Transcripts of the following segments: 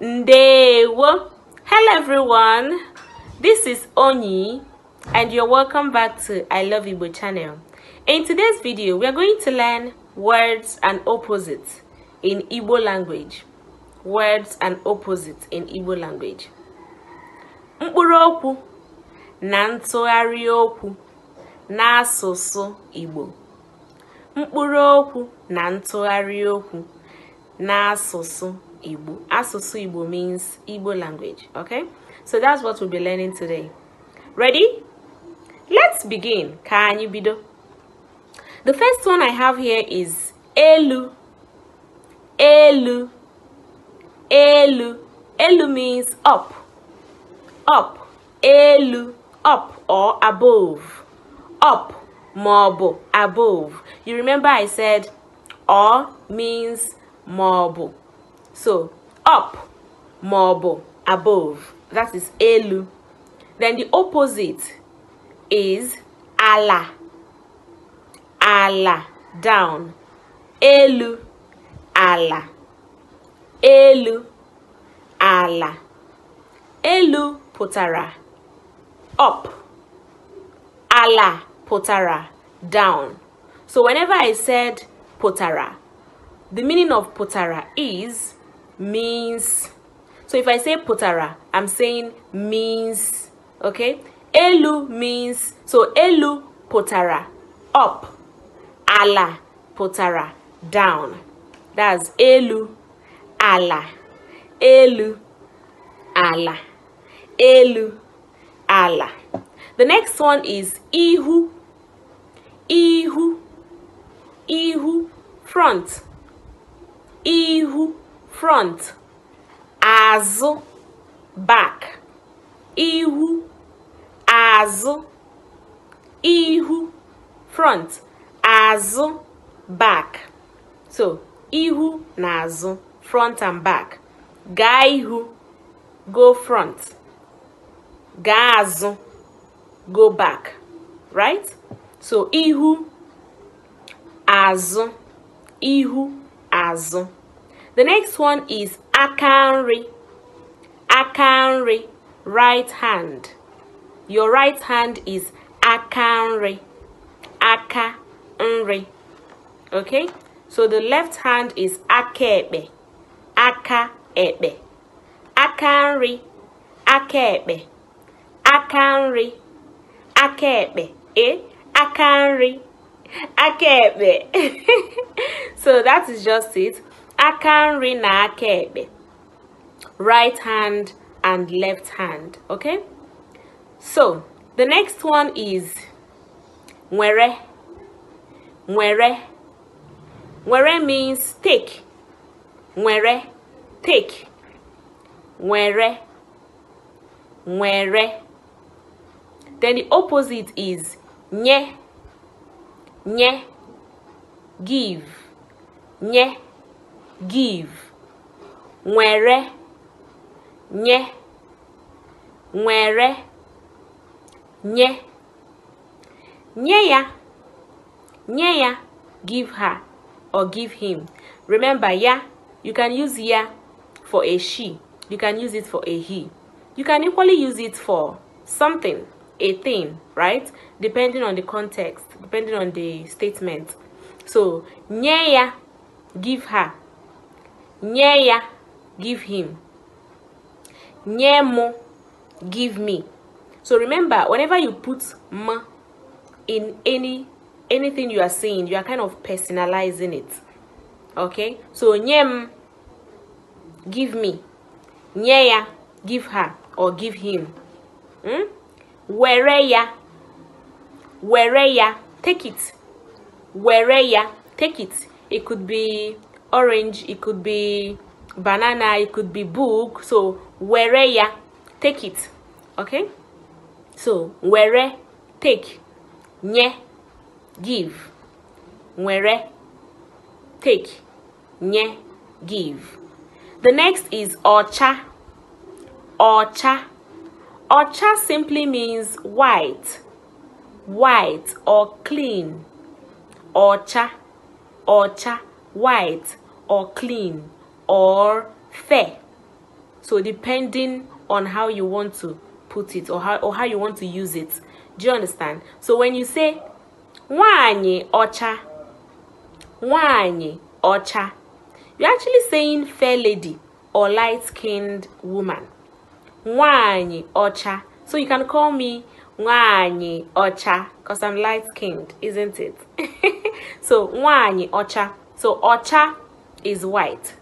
Ndewo. Hello everyone. This is Oni and you're welcome back to I Love Igbo channel. In today's video, we are going to learn words and opposites in Igbo language. Words and opposites in Igbo language. arioku na ntụgharị okwu n'asụsụ Igbo. Mkpụrụokwu na ntụgharị okwu n'asụsụ Igbo. Asusu Igbo means Igbo language. Okay? So that's what we'll be learning today. Ready? Let's begin. Kanyi bido. The first one I have here is Elu. Elu. Elu. Elu means up. Up. Elu. Up or above. Up. Marble. Above. You remember I said or means marble so, up marble, above, that is elu. Then the opposite is ala. Ala, down. Elu, ala. Elu, ala. Elu potara. up. Ala potara down. So whenever I said potara, the meaning of potara is means so if i say potara i'm saying means okay elu means so elu potara up ala potara down that's elu ala elu ala elu ala the next one is ihu ihu ihu front ihu front azụ back ihu azụ ihu front azụ back so ihu na azụ front and back gaa ihu go front gaa azụ go back right so ihu azụ ihu azụ The next one is akanri. Akanri, right hand. Your right hand is akanri. Akanri. Okay? So the left hand is akebe. Akaebe. Akanri. akabe, Akanri. akabe. Eh? Akanri. Akaebe. so that is just it aka nri na aka ekpe right hand and left hand okay so the next one is nwere nwere nwere means take nwere take nwere nwere then the opposite is nye nye give nye give nwere nye nwere nye nye ya nye ya give her or give him remember ya you can use ya for a she you can use it for a he you can equally use it for something a thing right depending on the context depending on the statement so nye ya give her nye ya give him nye mo give me so remember whenever you put m in any anything you are saying you are kind of personalizing it okay so nyem give me nyeya give her or give him hmm? wereya wereya take it wereya take it it could be orange it could be banana it could be book so were ya take it okay so were take nye give were take nye give the next is ocha ocha ocha simply means white white or clean ocha ocha white or clean or fair. So depending on how you want to put it or how or how you want to use it. Do you understand? So when you say wanyi ocha, wanyi ocha, you're actually saying fair lady or light-skinned woman. Wanyi ocha. So you can call me wanyi ocha because I'm light-skinned, isn't it? so wanyi ocha. So ocha is white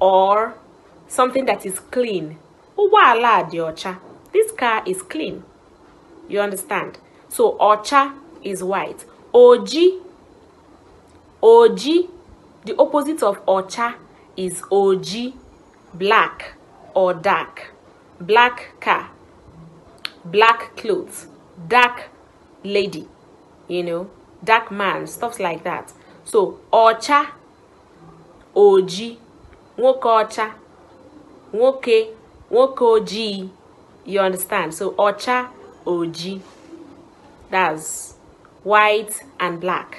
or something that is clean. Uwala diocha. This car is clean. You understand? So ocha is white. Oji. Oji. The opposite of ocha is oji. Black or dark. Black car. Black clothes. Dark lady. You know, dark man. Stuff like that. So ocha oji nwoke ọcha nwoke nwoke ojii you understand so ọcha oji that's white and black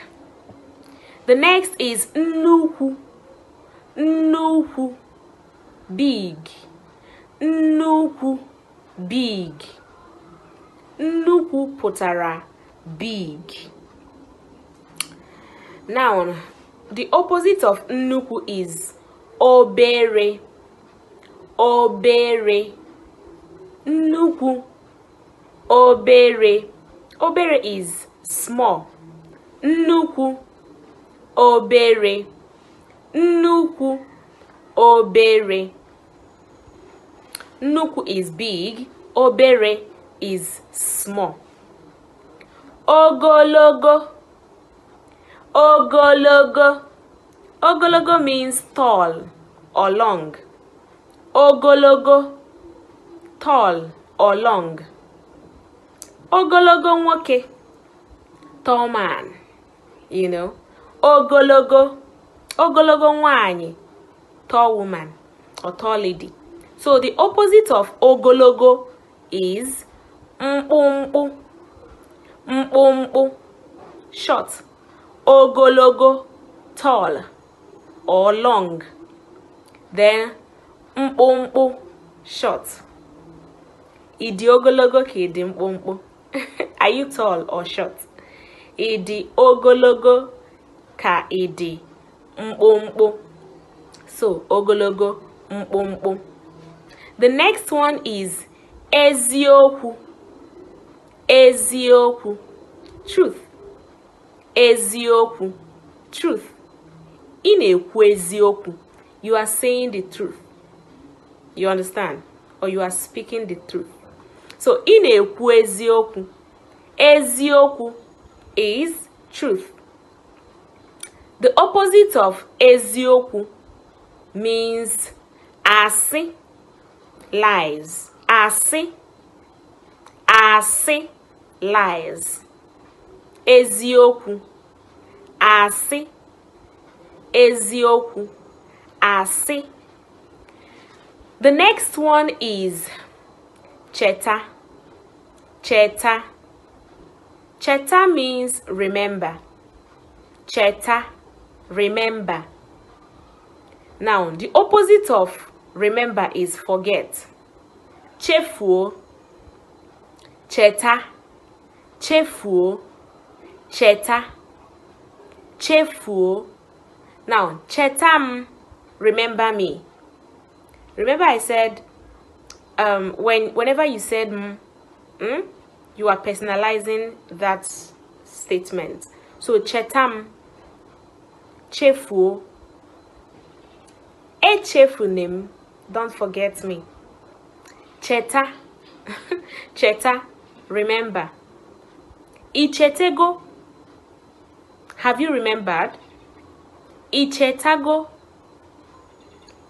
the next is nnukwu nnukwu big nnukwu big nnukwu pụtara big noun the opposite of nnukwu is obere obere nnukwu obere obere is small nnukwu obere nnukwu obere nnukwu is big obere is small ogologo ogologo ogologo means tall or long ogologo tall or long ogologo nwoke tall man you know ogologo ogologo nwanyi tall woman or tall lady so the opposite of ogologo is mkpụmkpụ mkpụmkpụ short ogologo tall or long then mkpụmkpụ short ị dị ogologo ka ị dị mkpụmkpụ are you tall or short ị dị ogologo ka ị dị mkpụmkpụ so ogologo mkpụmkpụ the next one is eziokwu eziokwu truth eziokwu truth ị na-ekwu eziokwu you are saying the truth you understand or you are speaking the truth so ị na-ekwu eziokwu eziokwu is truth the opposite of eziokwu means asị lies asị asị lies eziokwu asị eziokwu asị the next one is cheta cheta cheta means remember cheta remember now the opposite of remember is forget chefuo cheta chefuo cheta chefuo now cheta mm, remember me remember i said um when whenever you said mm, mm, you are personalizing that statement so cheta m mm, chefuo echefunim don't forget me cheta cheta remember ichete go Have you remembered? Ichetago.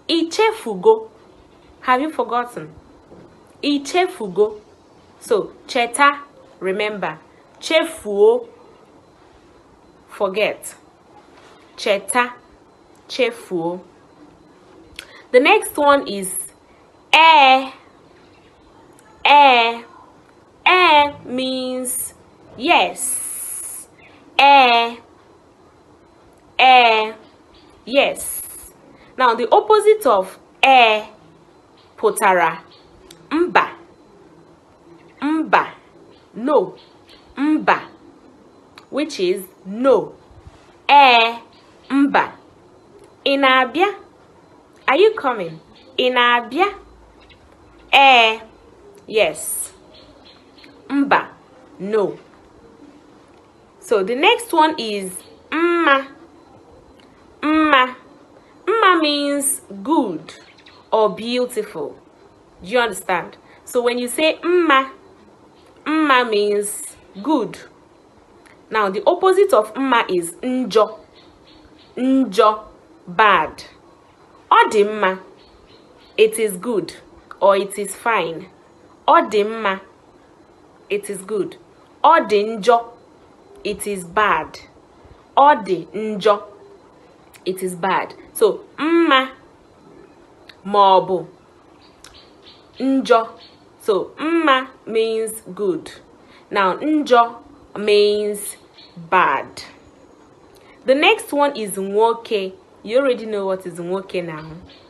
Ichefugo. Have you forgotten? Ichefugo. So, cheta, remember. Chefuo, forget. Cheta, chefuo. The next one is eh. Eh. Eh means yes. Eh Eh, yes. Now, the opposite of eh, putara mba. Mba. No. Mba. Which is no. eh, mba. Inabia. Are you coming? Inabia. Eh, Yes. Mba. No. So the next one is mma. Mma. Mma means good or beautiful. Do you understand? So when you say mma, mma means good. Now the opposite of mma is njo. Njo, bad. Odimma, it is good or it is fine. Odimma, it is good. Odinjo, it is bad. Odinjo, it is bad so mma maọbụ njọ so mma means good now njọ means bad the next one is nwoke you already know what is nwoke now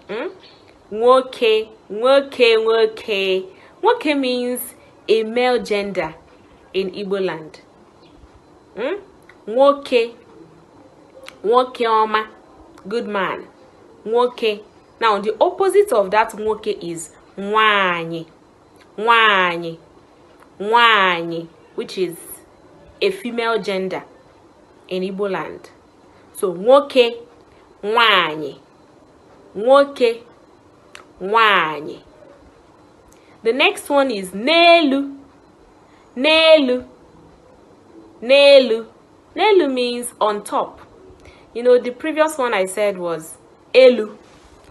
hmm? nwoke nwoke nwoke nwoke means a male gender in Igbo land hmm? nwoke nwoke ọma good man nwoke now the opposite of that nwoke is nwanyị nwanyị nwanyị which is a female gender in Igbo land so nwoke nwanyị nwoke nwanyị the next one is n'elu n'elu n'elu n'elu means on top you know the previous one i said was elu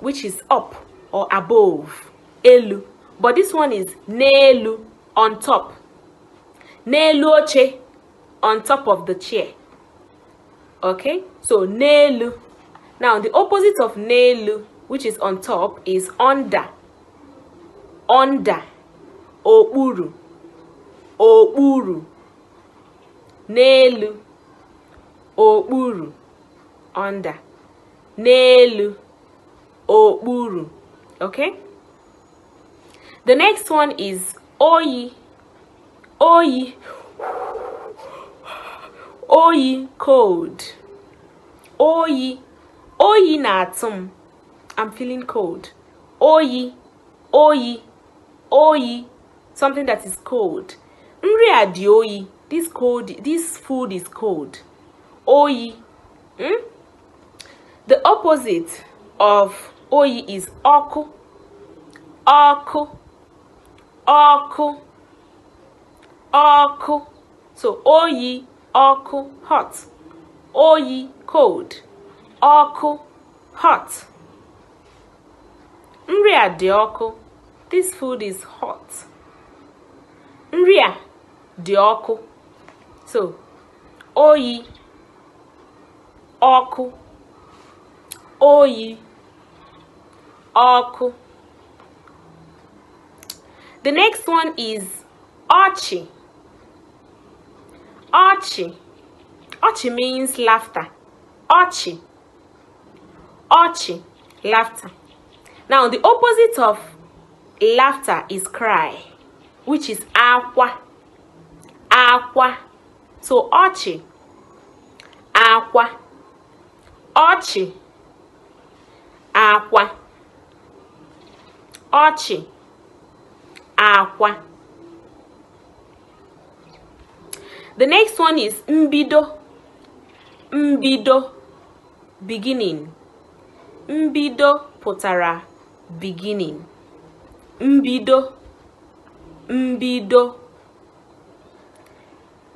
which is up or above elu but this one is nelu on top nelu oche on top of the chair okay so nelu now the opposite of nelu which is on top is under under okpuru okpuru n'elu okpuru under n'elu okpuru okay the next one is oyi oyi oyi cold oyi oyi na atum, i i'm feeling cold oyi oyi oyi something that is cold nri a dị oyi this cold this food is cold oyi mm? The opposite of oyi is ọkụ, ọkụ, ọkụ, ọkụ. So oyi, ọkụ, hot. Oyi, cold. Ọkụ, hot. Nri dị ọkụ. This food is hot. Nri dị ọkụ. So oyi, ọkụ. oyi ọkụ the next one is ọchị ọchị ọchị means laughter ọchị ọchị laughter now the opposite of laughter is cry which is akwa akwa so ọchị akwa ọchị akwa ọchị akwa the next one is mbido mbido beginning mbido pụtara beginning mbido mbido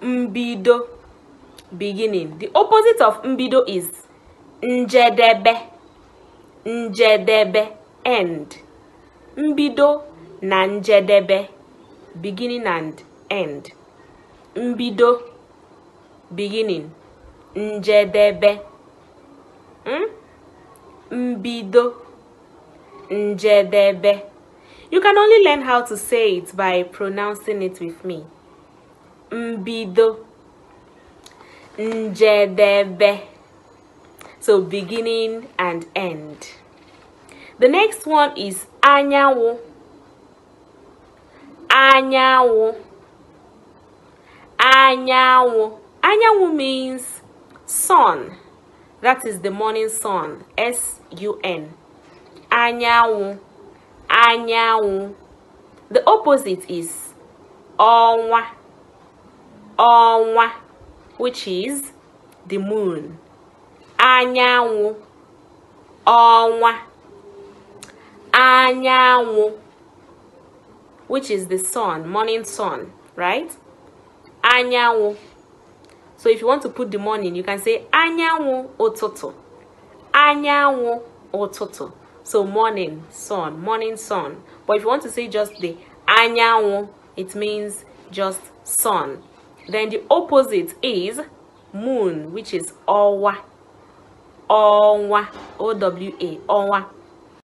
mbido beginning the opposite of mbido is njedebe njedebe end mbido na njedebe beginning and end mbido beginning njedebe hmm? mbido njedebe you can only learn how to say it by pronouncing it with me mbido njedebe so beginning and end the next one is anyawo. Anyawo. Anyawo. Anyawo means sun. That is the morning sun. S U N. Anyawo. Anyawo. The opposite is onwa. Onwa, which is the moon. Anyawo. Onwa. anyanwụ which is the sun morning sun right anyanwụ so if you want to put the morning you can say anyanwụ ụtụtụ anyanwụ ụtụtụ so morning sun morning sun but if you want to say just the anyanwụ it means just sun then the opposite is moon which is Owa. Owa owa ọnwa